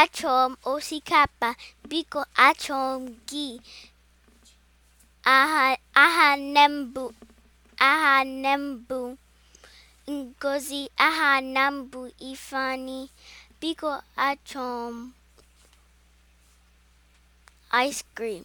achọrọ m osikapa biko achom m gị aha nne mbụ Ngozi aha na mbụ biko achọm m ice cream